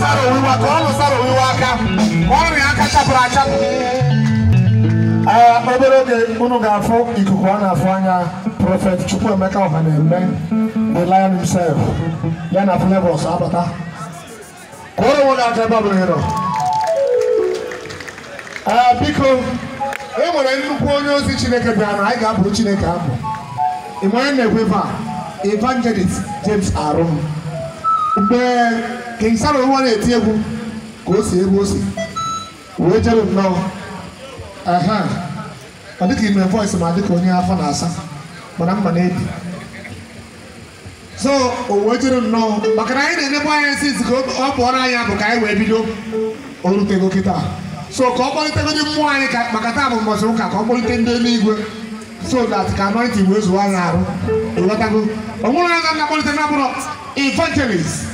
sara owiwa ka ọnụ sara owiwa aka ka ọrịa aka chapụrụ achapụ obere oge unu ga-afụ ikuku a na-afụ anya prọfet chukwuemeka ọha na-eme the lion himself ya na flavors abata kụọrọ nwoke aka ebe ọ bụla ịrọ biko e nwere nnukwu onye ozi chineke bịara na anyị ga-abụrụ chineke abụ ị manye na-ekwe evangelist james arum mgbe King Samuel nwa na-eti egwu ka o si egwu o si wee jere nnọọ aha ọ dịka ime voice ma dịka onye afọ na-asa mana mma na-ebi so o wee jere nnọọ maka na anyị na-enekwa anya esi ka ọ pụọrọ anya bụ ka anyị wee bido orutego kịta so ka ọ kpọlitegodi mmụọ anyị ka maka taa bụ mbọchị ụka ka ọ kpọlite ndị eluigwe so dat ka anointing wee zụwa anyị arụ ịghọtago ọ nwụrụ anya na-akpọlite na bụrụ evangelist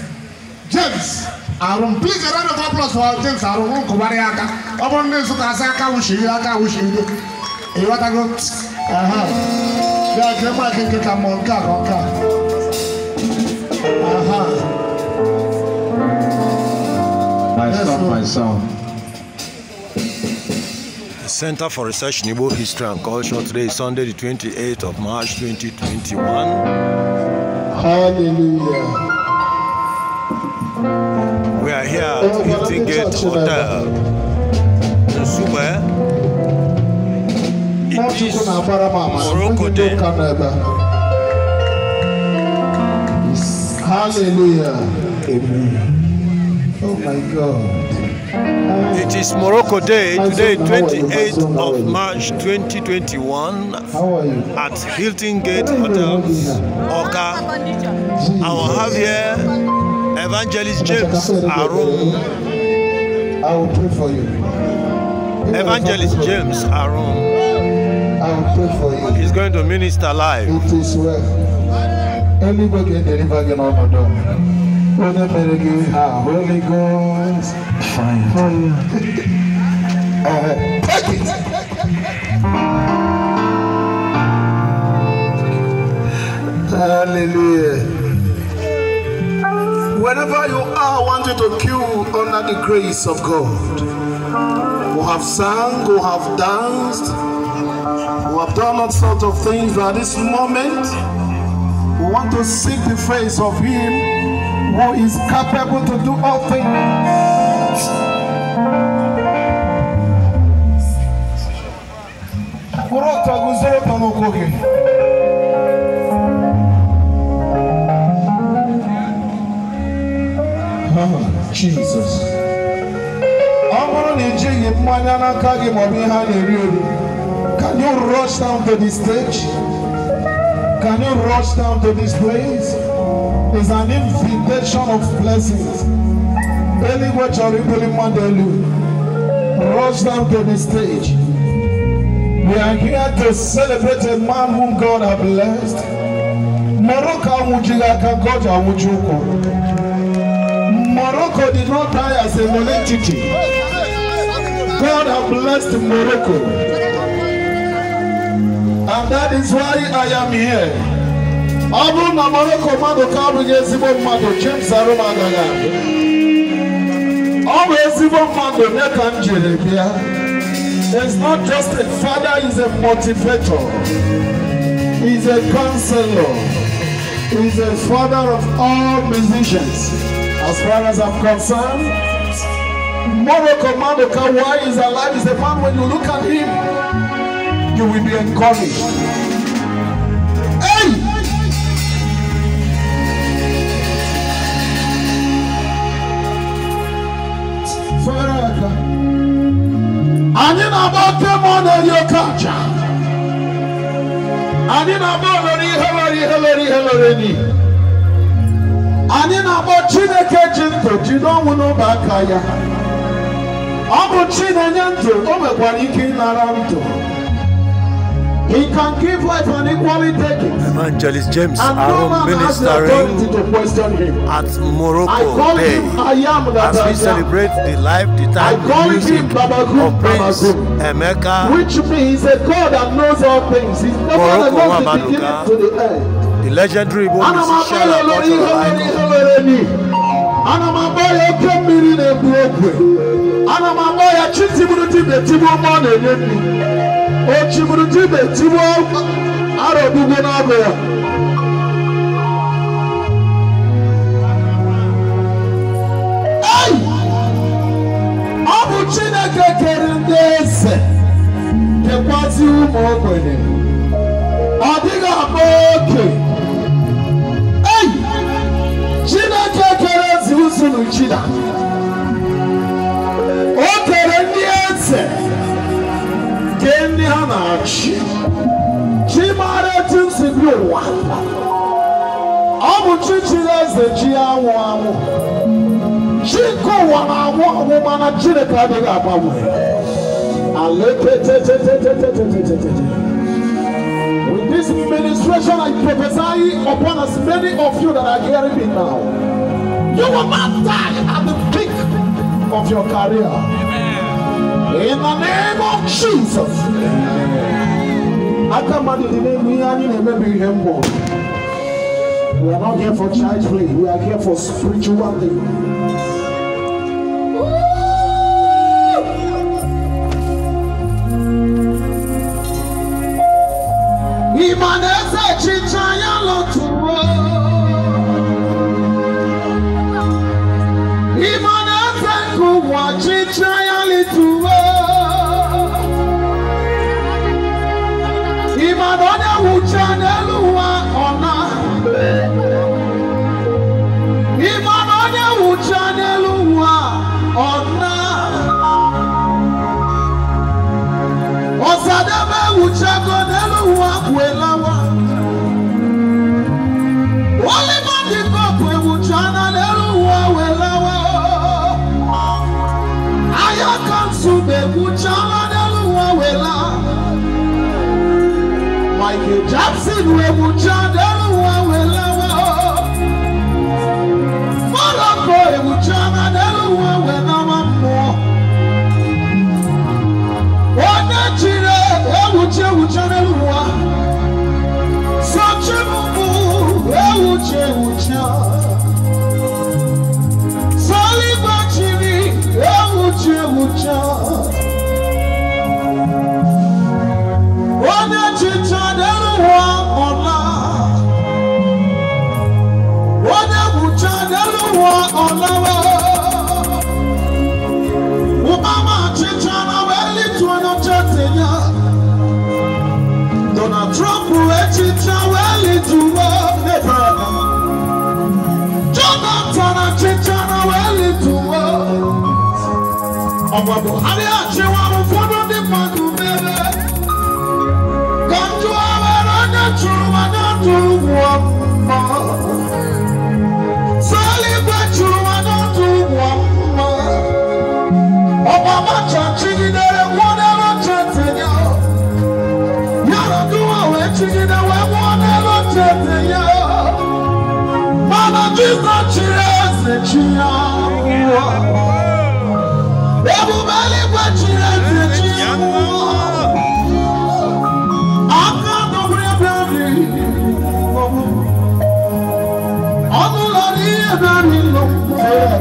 James Arun please a round of applause for James Arun wọn kò wárí aka ọmọ ní Nsukka asa aka wò ṣèyí aka wò ṣèyí dé èyí wá tago bí a jẹ máa kékeré ka mọ nká kọ nká. My son, my son. Center for Research in Igbo History and Culture. Today is Sunday, the 28th of March, 2021. Hallelujah. arrière, il tinguait trop tard. Zouma, ils disent Morokote. Hallelujah. Amen. Oh my God. It is Morocco Day, today 28th of March 2021 at Hilton Gate Hotel, Oka. Our here. Evangelist James Arum. I will pray for you. Evangelist James Arum. I will pray for you. He's going to minister live. It is well. Everybody get delivered in our door. Holy Ghost. Fire. Fire. uh, take it. Hallelujah. Wherever you are, I want you to queue under the grace of God. Who have sung, who have danced, who have done all sorts of things, but at this moment, we want to seek the face of Him who is capable to do all things. Can you rush down to the stage? Can you rush down to this place? It's an invitation of blessings. Anywhere Choripoli Mandelu, rush down to the stage. We are here to celebrate a man whom God has blessed. Morocco Mujigaka Goja Mujuko. Morocco did not die as a monetity. God has blessed Morocco. And that is why I am here. Abu bụrụ na Morocco mmadụ ka abụghị ezigbo mmadụ James Aroma agaghị abịa. ọ bụ ezigbo mmadụ nye ka It's not just a father, he's a motivator. He's a counselor. He's a father of all musicians. As far as I'm concerned, Morocco Madoka, why is alive? Is a man when you look at him, you will be encouraged. Hey! Faraka. Anyị na-agba temọ na-eri oke aja. Anyị na-agba olori ihe lori ihe lori ihe lori n'ihi. Anyị na-agba Chineke ji ntụ jide ọnwụ ọ bụ chi ndụ o nwekwara ike ịnara ndụ He can give life and equally take Evangelist James and ministering at Morocco Day as we celebrate the life, the time, the music of Prince Emeka. Which means a God that knows all things. He's never Morocco the beginning to the end. The legendary Igbo musician and cultural icon ana m agba ya oke mmiri na-egbu ogwe ana m agba ya chi tigburu dibịa tigbuo ma ọ na-enye nri o chigburu dibịa tigbuo ara ogbugbo n'agụ ya ọ bụ chineke kere ndị eze kekwazi ụmụ ogbenye ọ dịghị akpa oke n'ukyira o tere ndị eze nke ndị ha na-achị chi maara etu nsi bi ụwa ọ bụ chi chiri eze chi anwụ anwụ chi nke ụwa na-anwụ anwụ mana chineke adịghị agbanwe now. You will not die at the peak of your career. Amen. In the name of Jesus. We are not here for child play. We are here for spiritual things. Imanese lotu Ọ̀jí tíráyálì tùwó. Ìbàdàn ọ̀dẹ̀ wùjá n'elu wa ọ̀nà. Ìbàdàn ọ̀dẹ̀ wùjá n'elu wa ọ̀nà. Thank you, Jackson. We will chant everyone we One Such a move, will ọgbọgbọ adé àti wàhùn fọdún ní pàdù mẹrẹ kọjú awẹrẹ ní tùrùmọ ní tùrùmọ mọ sẹẹlì gbẹ tùrùmọ ní tùrùmọ mọ ọmọ mọtò tìgídẹrẹ wọn ẹrọ tètèyà yàrá dúró wẹ tìgídẹrẹ wọn ẹrọ tètèyà mọlá jíjọ tìrẹ ẹsẹ tìyà.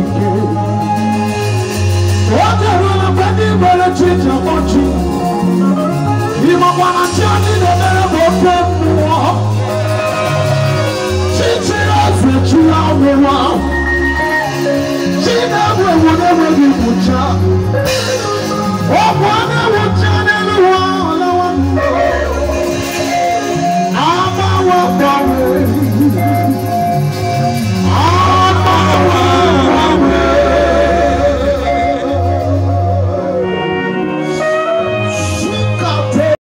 nìké. Wọ́n ti rú ọ̀pẹ ní ìbẹ̀rẹ̀ tí ìjà wọ́n jù. Ìmọ̀ pàmò tí a ní lè bẹ̀rẹ̀ bọ̀ pé mú wọ́n. Títí ẹ̀sìn tí a wọ̀ wá. Tí náà wọ̀ wọ̀ náà